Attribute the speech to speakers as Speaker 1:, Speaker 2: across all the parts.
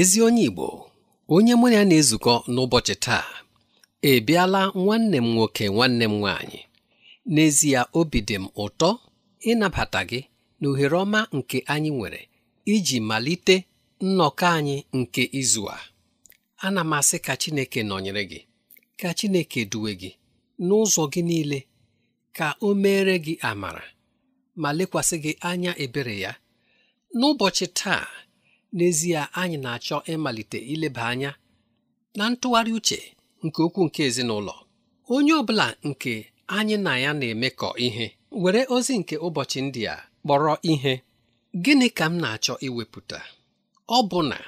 Speaker 1: ezi onye Igbo onye mụ ya na-ezukọ n'ụbọchị taa ebiala nwanne m nwoke nwanne m nwaanyị n'ezie obi dị m ụtọ ịnabata gị na ohere ọma nke anyị nwere iji malite nnọkọ anyị nke izu a ana m asị ka Chineke nọnyere gị ka Chineke duwe gị n'ụzọ gị niile ka o meere gị amara ma lekwasị gị anya ebere ya n'ụbọchị taa n'ezie anyị na-achọ ịmalite ileba anya na ntụgharị uche nke okwu nke ezinụlọ onye ọ bụla nke anyị na ya na-emekọ ihe were ozi nke ụbọchị ndị a kpọrọ ihe gịnị ka m na-achọ iwepụta ọ bụ na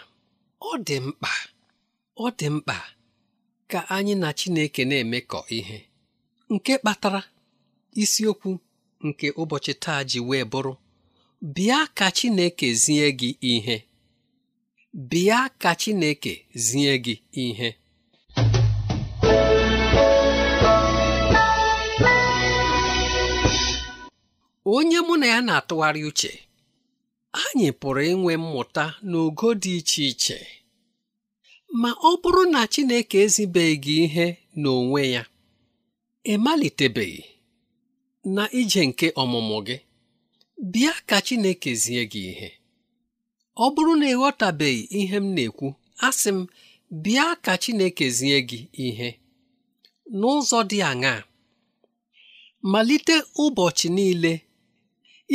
Speaker 1: ọ dị mkpa ọ dị mkpa ka anyị na Chineke na-emekọ ihe nke kpatara isiokwu nke ụbọchị taa ji wee bụrụ bịa ka Chineke zie gị ihe bịa ka Chineke zie gị ihe onye mụ na ya na-atụgharị uche anyị pụrụ inwe mmụta n'ogo dị iche iche ma ọ bụrụ na Chineke ezibeghị ihe n'onwe ya ịmalitebeghị na ije nke ọmụmụ gị bịa ka Chineke zie gị ihe ọ bụrụ na ịghọtabeghị ihe m na-ekwu asị m bịa ka Chineke zie gị ihe n'ụzọ dị aṅaa malite ụbọchị niile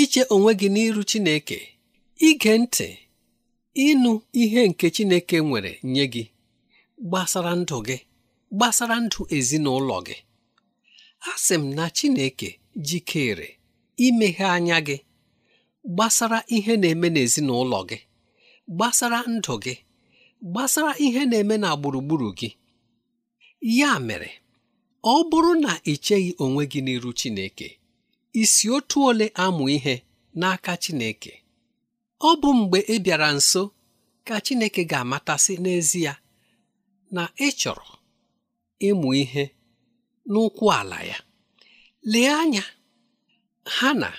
Speaker 1: iche onwe gị n'iru Chineke ige ntị ịnụ ihe nke Chineke nwere nye gị gbasara ndụ gị gbasara ndụ ezinụlọ gị asị m na Chineke jikere imeghe anya gị gbasara ihe na-eme n'ezinụlọ gị gbasara ndụ gị gbasara ihe na-eme na gburugburu gị ya mere ọ bụrụ na ị cheghị onwe gị n'iru Chineke isi otu ole amụ ihe n'aka Chineke ọ bụ mgbe ị bịara nso ka Chineke ga-amatasị n'ezie na ịchọrọ ịmụ ihe n'ụkwụ ala ya lee anya Hanna,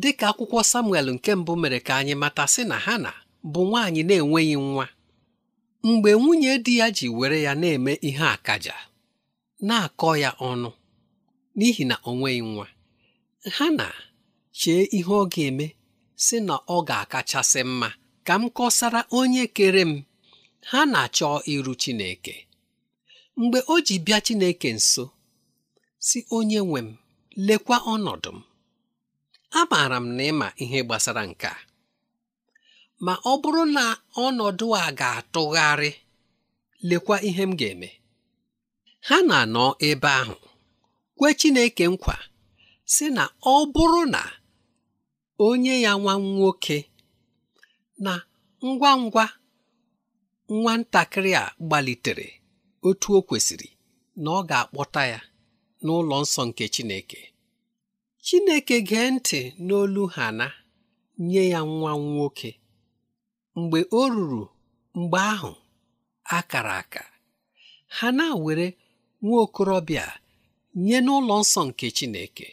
Speaker 1: dịka akwụkwọ Samuel nke mbụ mere ka anyị mata sị na Hana bụ nwaanyị na-enweghị nwa mgbe nwunye di ya ji were ya na-eme ihe akaja na-akọ ya ọnụ n'ihi na o nweghị nwa ha na chee ihe ọ ga-eme si na ọ ga-akachasị mma ka m kọsara onye kere m ha na-achọ iru Chineke mgbe o ji bịa Chineke nso si onye nwe m lekwa ọnọdụ m amaara m na ịma ihe gbasara nke a ma ọ bụrụ na ọnọdụ a ga-atụgharị lekwa ihe m ga-eme ha na-anọ ebe ahụ kwe Chineke nkwa si na ọ bụrụ na onye ya nwa nwoke na ngwa ngwa nwatakịrị a gbalitere otu o kwesịrị na ọ ga-akpọta ya n'ụlọ nsọ nke Chineke Chineke gee ntị n'olu ha na nye ya nwa nwoke mgbe o ruru mgbe ahụ akara aka ha na-were nwa okorobịa nye n'ụlọ nsọ nke Chineke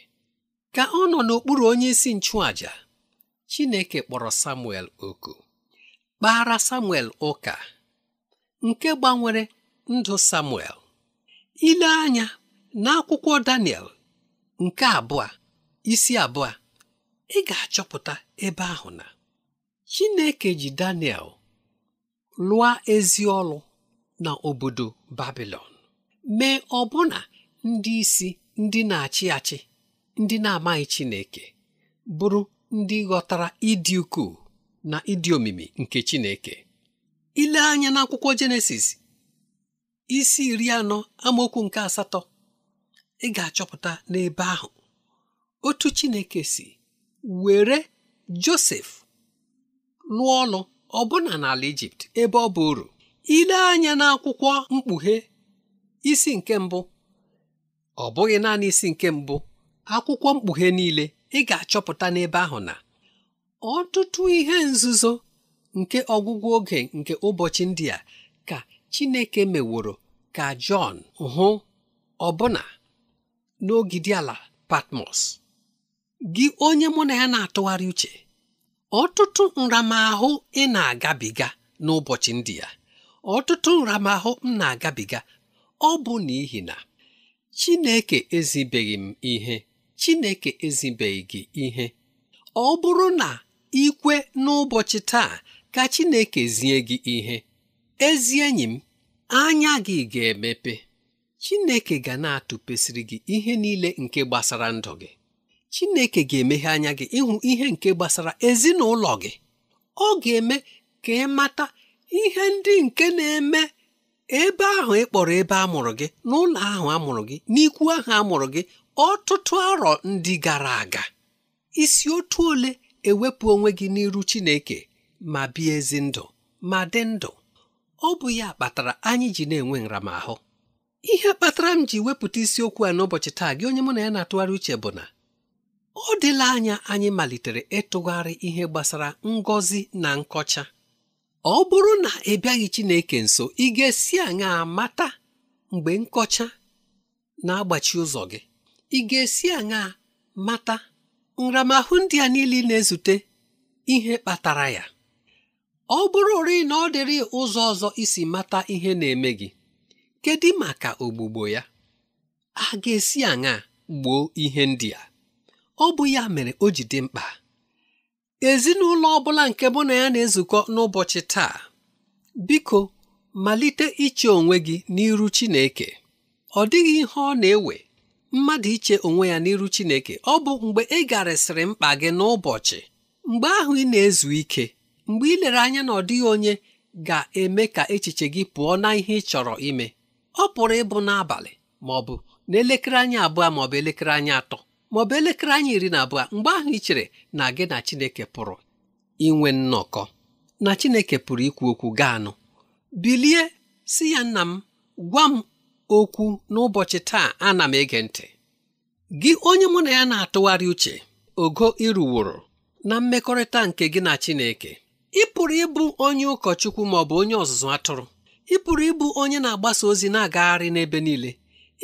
Speaker 1: ka ọ nọ n'okpuru onye isi nchụàja Chineke kpọrọ Samuel oku kpara Samuel ụka nke gbanwere ndụ Samuel ile anya n'akwụkwọ Daniel nke abụọ isi abụọ ị ga-achọpụta ebe ahụ na chineke ji daniel lụọ ezi ọlụ na obodo babilon mee ọbụna ndị isi ndị na-achị achị ndị na-amaghị chineke bụrụ ndị ghọtara ịdị ukwuu na ịdị omimi nke chineke ile anya n'akwụkwọ jenesis isi iri anọ amaokwu nke asatọ ị ga-achọpụta n'ebe ahụ otu chineke si were josef lụọ ọnụ ọbụna n'ala ijipt ebe ọ bụ uru ile anya n'akwụkwọ mkpughe isi nke mbụ ọ bụghị naanị isi nke mbụ akwụkwọ mkpughe niile ị ga-achọpụta n'ebe ahụ na ọtụtụ ihe nzuzo nke ọgwụgwụ oge nke ụbọchị ndị a ka Chineke meworo ka Jọn hụ ọbụna n'ogidi ala Patmos gị onye mụ na ya na-atụgharị uche ọtụtụ nramahụ ị na-agabiga n'ụbọchị ndị ya ọtụtụ nramahụ m na-agabiga ọ bụ n'ihi na Chineke ezibeghị m ihe Chineke ezibeghị gị ihe ọ bụrụ na ikwe n'ụbọchị taa ka Chineke zie gị ihe ezi enyi m anya gị ga-emepe Chineke ga na-atụpesịrị gị ihe niile nke gbasara ndụ gị Chineke ga-emeghe anya gị ịhụ ihe nke gbasara ezinụlọ gị ọ ga-eme ka ị mata ihe ndị nke na-eme ebe ahụ ị kpọrọ ebe a mụrụ gị n'ụlọ ahụ a mụrụ gị n'ikwu ahụ a mụrụ gị ọtụtụ arọ ndị gara aga isi otu ole ewepụ onwe gị n'iru Chineke ma bie ezi ndụ ma dị ndụ ọ bụ ya kpatara anyị ji na-enwe nramahụ ihe kpatara m ji wepụta isiokwu a n'ụbọchị taa gị onye mụ na ya na-atụgharị uche bụ na ọ dịla anya anyị malitere ịtụgharị ihe gbasara ngọzi na nkọcha ọ bụrụ na ị bịaghị Chineke nso ị ga-esi aṅa mata mgbe nkọcha na-agbachi ụzọ gị ị ga-esi aṅa mata nramahụ ndị a niile na-ezute ihe kpatara ya ọ bụrụ ri na ọ dịrị ụzọ ọzọ isi mata ihe na-eme gị kedu maka ogbugbo ya a ga-esi aṅa gboo ihe ndị a ọ bụ ya mere o ji dị mkpa ezinụlọ ọ bụla nke mụ na ya na-ezukọ n'ụbọchị taa biko malite iche onwe gị n'iru Chineke ọ dịghị ihe ọ na-ewe mmadụ iche onwe ya n'iru Chineke ọ bụ mgbe ị garịsịrị mkpa gị n'ụbọchị mgbe ahụ ị na-ezu ike mgbe ị lere anya na ọ dịghị onye ga-eme ka echiche gị pụọ na ihe ị chọrọ ime ọ pụrụ ịbụ n'abalị ma ọ bụ n'elekere anya abụọ ma ọ bụ elekere anya atọ maọbụ elekere anyị iri na abụọ mgbe ahụ ị chere na gị na Chineke pụrụ inwe nnọkọ na Chineke pụrụ ikwu okwu gaanụ bilie si ya nna m gwa m okwu n'ụbọchị taa ana m ege ntị gị onye mụ na ya na-atụgharị uche ogo ịrụworo na mmekọrịta nke gị na Chineke ị pụrụ ịbụ onye ụkọchukwu ma ọ bụ onye ọzụzụ atụrụ ị pụrụ ịbụ onye na-agbasa ozi na-agagharị n'ebe niile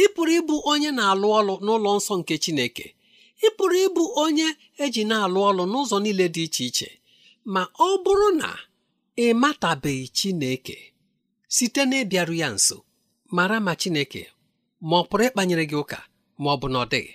Speaker 1: ị pụrụ ịbụ onye na-alụ ọlụ n'ụlọ nsọ nke Chineke ị pụrụ ịbụ onye eji na-alụ ọlụ n'ụzọ niile dị iche iche ma ọ bụrụ na ị matabeghị Chineke site na ya nso mara ma Chineke ma ọ pụrụ ịkpanyere gị ụka ma ọ bụ na ọ dịghị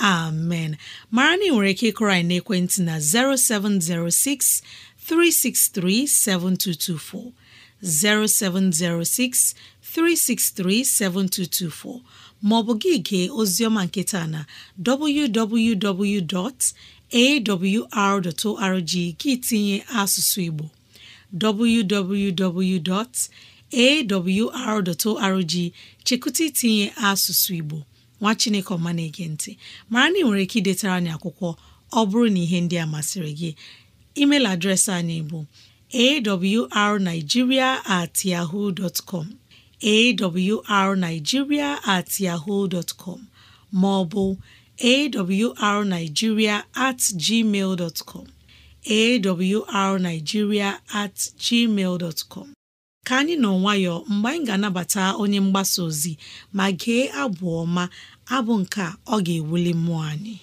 Speaker 2: amen mara na ị nwere ike ịkụrọ anyị n'ekwentị na 0706 363 7224 0706 363 7224 maọbụ gị gee oziọma nketa na www.awr.org gị tinye asụsụ Igbo www.awr.org chekụta itinye asụsụ Igbo nwa chineke ọma na-ege ntị mara na ị nwere ike idetara anyị akwụkwọ ọ bụrụ na ihe ndị a masịrị gị email adreesị anyị bụ arigiria at com arigiria at com ma ọ bụ at gmail com awrnigeria at gmail ka anyị nọ nwayọọ mgbe anyị ga-anabata onye mgbasa ozi ma gee abụ ọma abụ nke a ọ ga-ewuli mmụọ anyị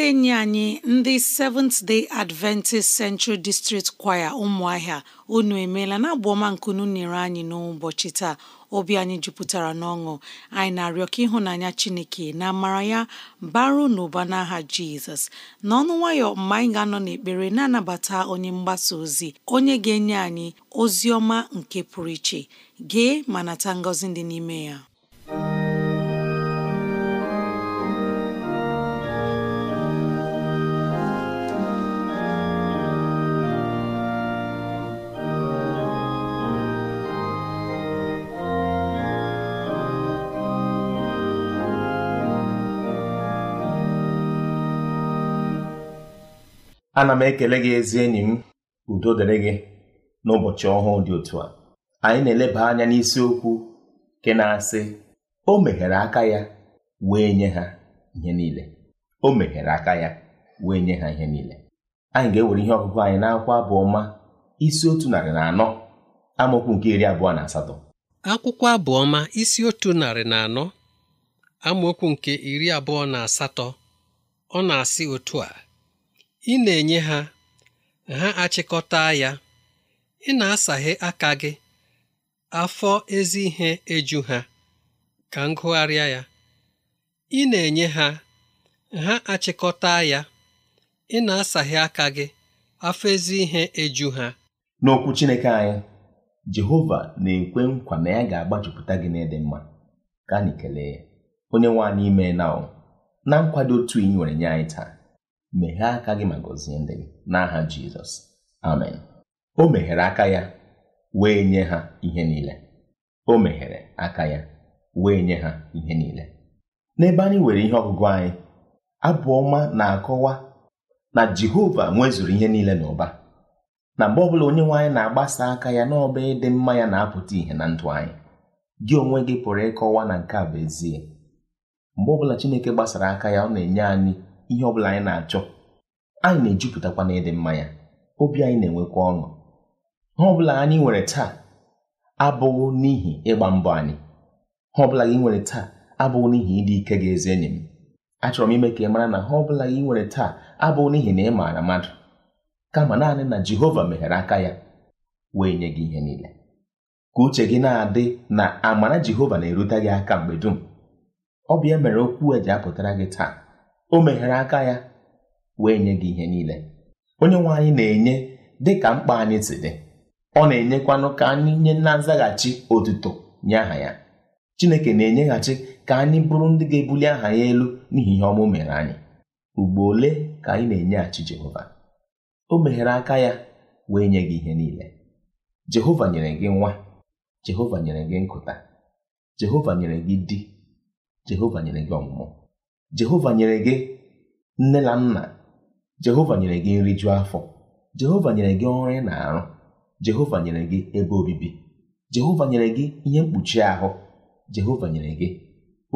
Speaker 2: ndị enyi anyị ndị Seventh Day Adventist Central District Choir ụmụahịa unu emeela na abụ ọma nkunu nyere anyị n'ụbọchị taa obi anyị jupụtara n'ọṅụ anyị na-arịọ ka ịhụnanya Chineke na amara ya baro n'ụba n'aha Jizọs n'ọnụ nwayọ mgbe anyị ga-anọ n'ekpere na-anabata onye mgbasa ozi onye ga-enye anyị ozi ọma nke pụrụ iche gee ma nata ngọzi dị n'ime ya
Speaker 3: ana m ekele gị ezi enyi m udo dịrị gị n'ụbọchị ọhụụ dị otu a anyị na-eleba anya n'isiokwu nke na-asị o meghere aka ya wee nye ha ihe niile o meghere aka ya wee nye ha ihe niile anyị ga-ewere ihe ọgụgụ anyị n'akwụkwọ abụọma isi otu narị na anọ amaokwu nke iri abụọ na asatọ
Speaker 1: akwụkwọ abụọma isi otu narị na anọ amaokwu nke iri abụọ na asatọ ọ na-asị otu a ị na-enye ha ha achịkọta ya ị na-asaghe aka gị afọ ezi ihe eju ha ka m gụgharịa ya ị na-enye ha ha achịkọta ya ị na-asaghe aka gị afọ ezi ihe eju ha
Speaker 3: n'okwu Chineke anyị Jehova na-ekwe nkwa na ya ga-agbajupụta gị n'ịdị mma ka anyị kelee onye nwe anyị ime na na nkwado otu ị nwere nye anyị taa meghee aka gị ma gọzie ndị gị n'aha Jizọs amen o meghere aka ya wee nye ha ihe niile o meghere aka ya wee nye ha ihe niile n'ebe anyị nwere ihe ọgụgụ anyị abụọma na-akọwa na Jehova nwezuru ihe niile n'ụba na mgbe ọbụla onye nwe anyị na-agbasa aka ya n'ọba ịdị mma ya na-apụta ihe na ndụ anyị gị onwe gị pụrụ ịkọwa na nke a bụ ezie mgbe ọbụla Chineke gbasara aka ya ọ na-enye anyị ihe ọ bụla anyị na-achọ anyị na-ejupụtakwa na ịdị mma ya obi anyị na-enwekwa ọṅụ ha ọbụla anyị nwere taa abụghị n'ihi ịgba mbọ anyị ha ọbụla gị nwere taa abụghị n'ihi ịdị ike gị ezi enyi m achọrọ m ime ka ị mara na ha ọbụla gị nwere taa abụghị n'ihi na ị maara mmadụ kama naanị na Jehova meghere aka ya wee nye gị ihe niile ka uche gị na-adị na amara Jehova na-erute gị aka mgbe dum ọ bụ ya mere okwu e ji apụtara gị taa o meghere aka ya wee nye gị ihe niile onye nwe anyị na-enye dị ka mkpa anyị si dị ọ na-enyekwanụ ka anyị nye na nzaghachi otuto nye aha ya Chineke na-enyeghachi ka anyị bụrụ ndị ga-ebuli aha ya elu n'ihi ihe ọmụ mere anyị ugbo ole ka anyị na-enyeghachi Jehova o meghere aka ya wee nye gị ihe niile Jehova nyere gị nwa Jehova nyere gị nkụta Jehova nyere gị di Jehova nyere gị ọmụmụ jehova nyere gị nne na nna jehova nyere gị nri jụọ afọ jehova nyere gị ọrụ ị na-arụ jehova nyere gị ebe obibi jehova nyere gị ihe mkpuchi ahụ jehova nyere gị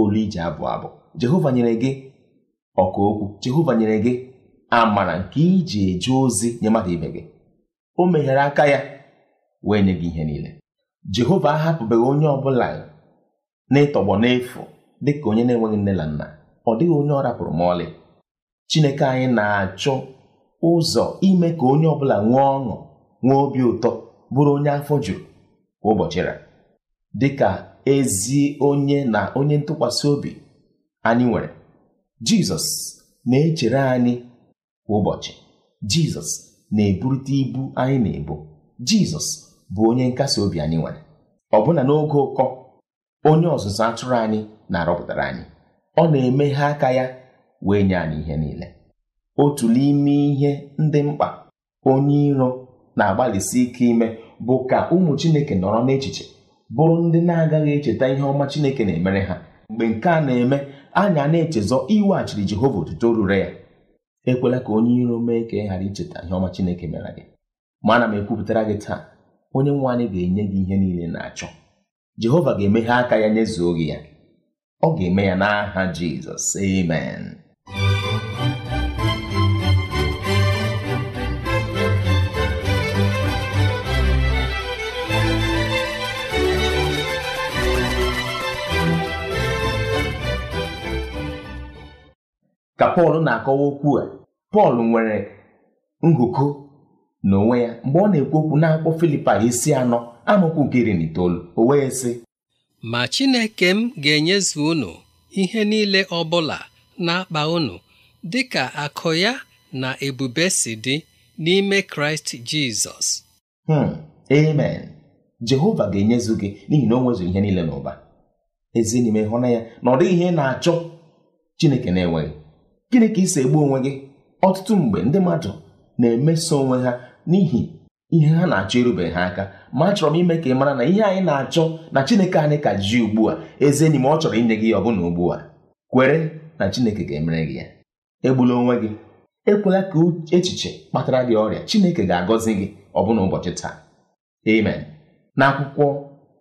Speaker 3: olu ije abụ abụ jehova nyere gị ọka okwu jehova nyere gị amara nke iji eje ozi nye mmadụ ibe gị o meghere aka ya wee nye gị ihe niile jehova ahapụbeghị onye ọ bụla n'ịtọgbọ n'efu dịka onye na-enweghị nne na nna ọ dịghị onye ọ rapụrụ m ọlị Chineke anyị na-achọ ụzọ ime ka onye ọ bụla nwee ọṅụ nwee obi ụtọ bụrụ onye afọ juru ụbọchị ra dịka ezi onye na onye ntụkwasị obi anyị nwere Jizọs na-echere anyị kwa ụbọchị Jizọs na-eburite ibu anyị na-ebu Jizọs bụ onye nkasi obi anyị nwere ọbụna n'oge ụkọ onye ọzụzụ atụrụ anyị na-arọpụtara anyị ọ na-emeghe aka ya wee nye anyị ihe niile otu n'ime ihe ndị mkpa onye iro na-agbalịsi ike ime bụ ka ụmụ Chineke nọrọ n'echiche bụrụ ndị na-agaghị echeta ihe ọma Chineke na-emere ha mgbe nke a na-eme anya na-echezọ iweghachiri Jehova otuto rure ya ekwela ka onye iro mee ka ị ghara icheta ihe ọma Chineke mere gị ma ana m ekwupụtara gị taa onye nwe anyị ga-enye gị ihe niile na-achọ Jehova ga-emeghe aka ya nyezuo gị ya ọ ga-eme ya n'aha Jizọs amen ka Pọl na-akọwa okwu a Pọl nwere ngụkọ n'onwe ya mgbe ọ na-ekwu okwu n'akwụkwọ Filipa isi anọ amaokwu nke iri na itoolu o wee sị
Speaker 1: ma Chineke m ga-enyezu unu ihe niile ọ bụla na-akpa unu dị akụ ya na ebube si dị n'ime Kraịst Jizọs
Speaker 3: hmm, amen Jehova ga-enyezu gị n'ihi na o nwezu ihe niile n'ụba ezi n'ime hụna ya na ọ dịghị ihe na-achọ Chineke na-enweghị gịnị ka ị si egbu onwe gị ọtụtụ mgbe ndị mmadụ na-emeso onwe ha n'ihi ihe ha na-achọ irube ha aka ma achọrọ m ime ka ị mara na ihe anyị na-achọ na Chineke anyị ka ji ugbu a eze enyi m ọ chọrọ inye gị ya ọbụna ugbu a kwere na Chineke ga-emere gị ya egbula onwe gị ekwela ka echiche kpatara gị ọrịa Chineke ga-agọzi gị ọbụna ụbọchị taa amen akwụkwọ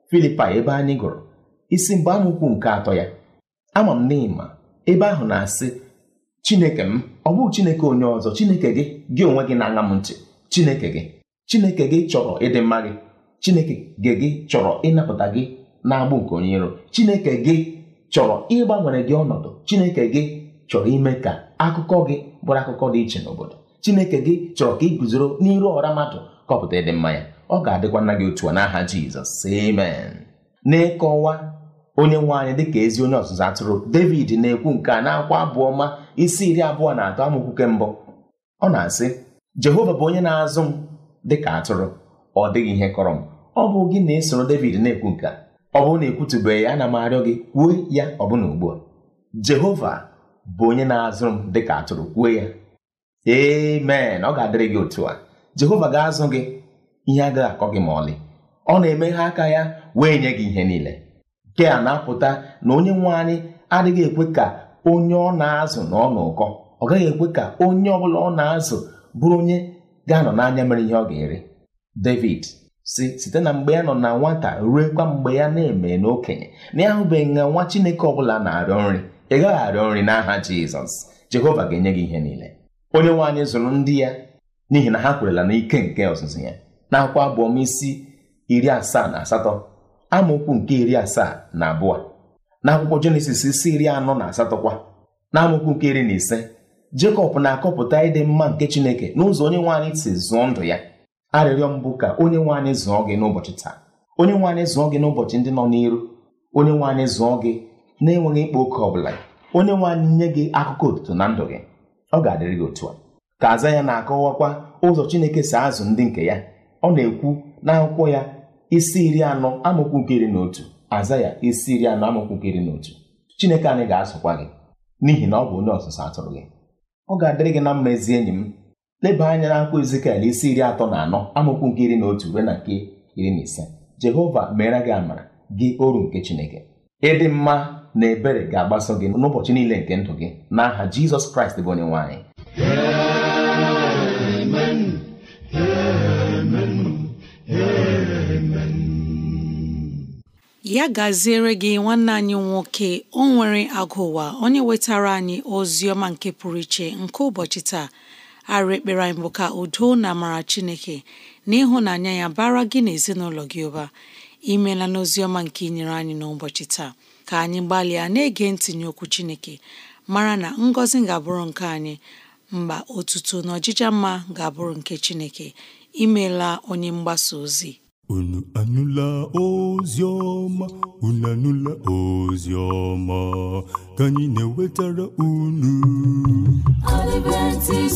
Speaker 3: Filipaị ebe anyị gụrụ isi mgbe amụkwu nke atọ ya ama m n'ịma ebe ahụ na-asị Chineke m ọ bụghị Chineke onye ọzọ Chineke gị gị onwe gị na-aṅa m ntị Chineke gị Chineke gị chọrọ ịdị mma gị chineke gị gị chọrọ ịnapụta gị na-agbụ nke onye iro chineke gị chọrọ ịgbanwere gị ọnọdụ chineke gị chọrọ ime ka akụkọ gị bụrụ akụkọ dị iche n'obodo chineke gị chọrọ ka ị guzoro n'iru ọra mmadụ kọpụta ịdị mma ya ọ ga-adịkwa nna gị otu a n'aha jizọs amen n'ịkọwa onye nwe anyị dịka ezi onye ọzụzụ atụrụ david na-ekwu nke a na-akwa abụọ ma isi iri abụọ na atọ amaokwu nke mbụ ọ na-asị jehova bụ onye na-azụ m dịka atụrụ ọ dịghị ihe kọrọ m ọ bụ gị na-esoro David na-ekwu nke a ọ bụrụ na ekwutubeghị ana m arịọ gị kwuo ya ọbụna ugbu a Jehova bụ onye na-azụrụ m dịka atụrụ kwuo ya amen ọ ga-adịrị gị otu a Jehova ga-azụ gị ihe agaghị akọ gị ma ọlị ọ na-emeghe aka ya wee nye gị ihe niile nke a na-apụta na onye nwe anyị adịghị ekwe ka onye ọ na-azụ na ọ ụkọ ọ gaghị ekwe ka onye ọ bụla ọ na-azụ bụrụ onye ga-anọ n'anya mere ihe ọ ga-ere David si site na mgbe ya nọ na nwata ruekwa mgbe ya na-eme n'okenye na ya hụbeghị na nwa chineke ọbụla na-arịọ nri ị gaghị arịọ nri n'aha jizọs jehova ga-enye gị ihe niile onye nwaanyị zụrụ ndị ya n'ihi na ha kwerela n'ike nke ọzụzụ ya n'akwụkwọ abụọm isi iri asaa na asatọ amaokwu nke iri asaa na abụọ n'akwụkwọ jenesis isi iri anọ na asatọ kwa na amaokwu nke iri na ise jekọb na-akọpụta ịdị mma nke chineke n'ụzọ onye nwaanyị si zụọ ndụ ya arịrịọ mbụ ka onye nwe anyị zụọ gị n'ụbọchị taa onye nwe anyị zụọ gị n'ụbọchị ndị nọ n'iru onye nwe anyị zụọ gị na-enweghị ịkpa oke ọ bụla onye nwe anyị nye gị akụkọ otuto na ndụ gị ọ ga-adịrị gị otu a ka aza ya na-akọwakwa ụzọ Chineke si azụ ndị nke ya ọ na-ekwu n'akwụkwọ ya isi iri anọ amụkwu nke iri na otu aza ya isi iri anọ amụkwu nke iri na otu Chineke anyị ga-azụkwa gị n'ihi na ọ bụ onye ọzụzụ atụrụ gị ọ ga-adịrị gị na mma ezi enyi m leba anya na akwụkwọ Ezikiel isi iri atọ na anọ amụkwu nke iri na otu ruo na nke iri na ise Jehova meere gị amara gị oru nke Chineke ịdị mma na ebere ga-agbaso gị n'ụbọchị niile nke ndụ gị n'aha Jizọs Kraịst bụ onye nwanyị.
Speaker 2: ya gaziere gị nwanne anyị nwoke o nwere agụụwa onye wetara anyị ozi ọma nke pụrụ iche nke ụbọchị taa arụ ekpere anyị bụ ka udo na amara chineke na ịhụnanya ya bara gị na ezinụlọ gị ụba imela n'ozi ọma nke inyere anyị n'ụbọchị taa ka anyị gbalịa na-ege ntinye okwu chineke mara na ngọzi ga-abụrụ nke anyị mba otuto na ọjịja mma ga-abụrụ nke chineke imela onye mgbasa ozi
Speaker 3: unu anụla ozi ọma unu anụla ozi ọma ka anyị na-ewetara unu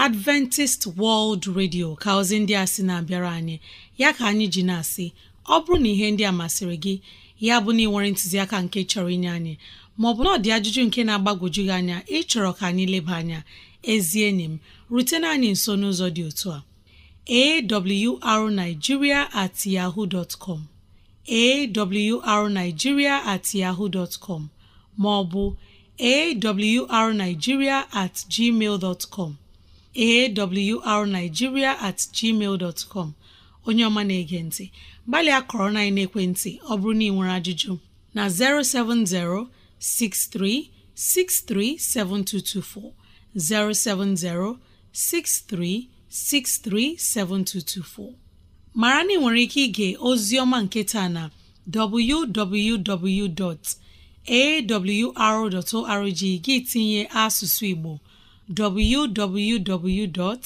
Speaker 2: adventist world radio ka ozi ndị a sị na-abịara anyị ya ka anyị ji na-asị ọ bụrụ na ihe ndị a masịrị gị ya bụ na ị nwere ntụziaka nke chọrọ inye anyị maọbụ na ọ ajụjụ nke na-agbagwoju gị anya ịchọrọ ka anyị leba anya ezi enyi m rutena anyị nso n'ụzọ dị otu a awrnigeria at yahoo dot com awrnigeria at yahoo dot com maọbụ awrnigeria at gmail dot com awrnigeria at onye ọma na-ege ntị gbalịa kọrọ na ekwentị ọ bụrụ na ị nwere ajụjụ na 070 mara na ị nwere ike ige ozi nketa na www.awr.org gị tinye asụsụ Igbo www.awr.org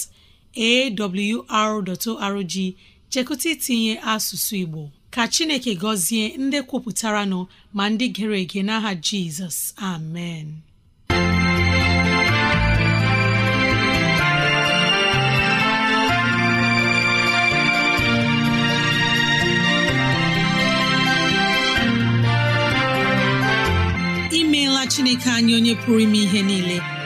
Speaker 2: chekụta itinye asụsụ Igbo ka Chineke gọzie ndị kwupụtaranụ nọ ma ndị gere ege n'aha Jizọs amen imeela Chineke anyị onye pụrụ ime ihe niile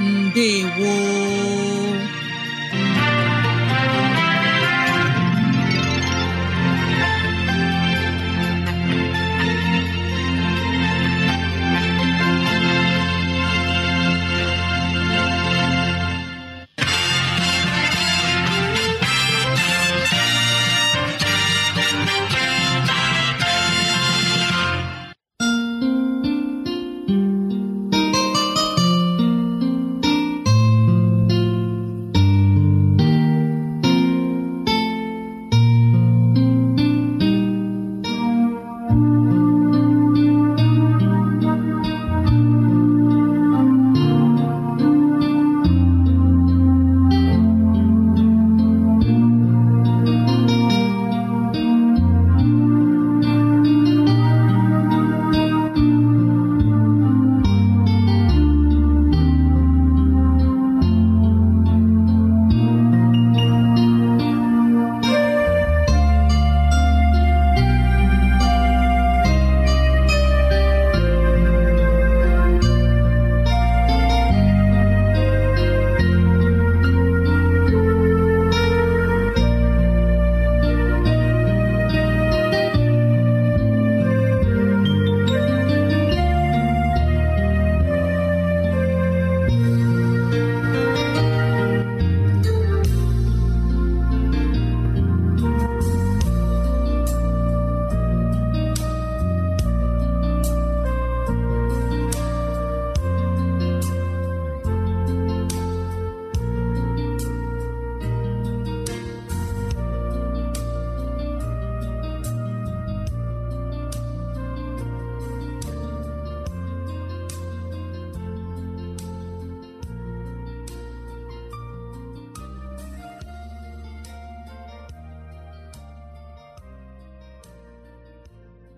Speaker 2: ndewo